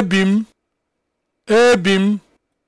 ebi m ebi m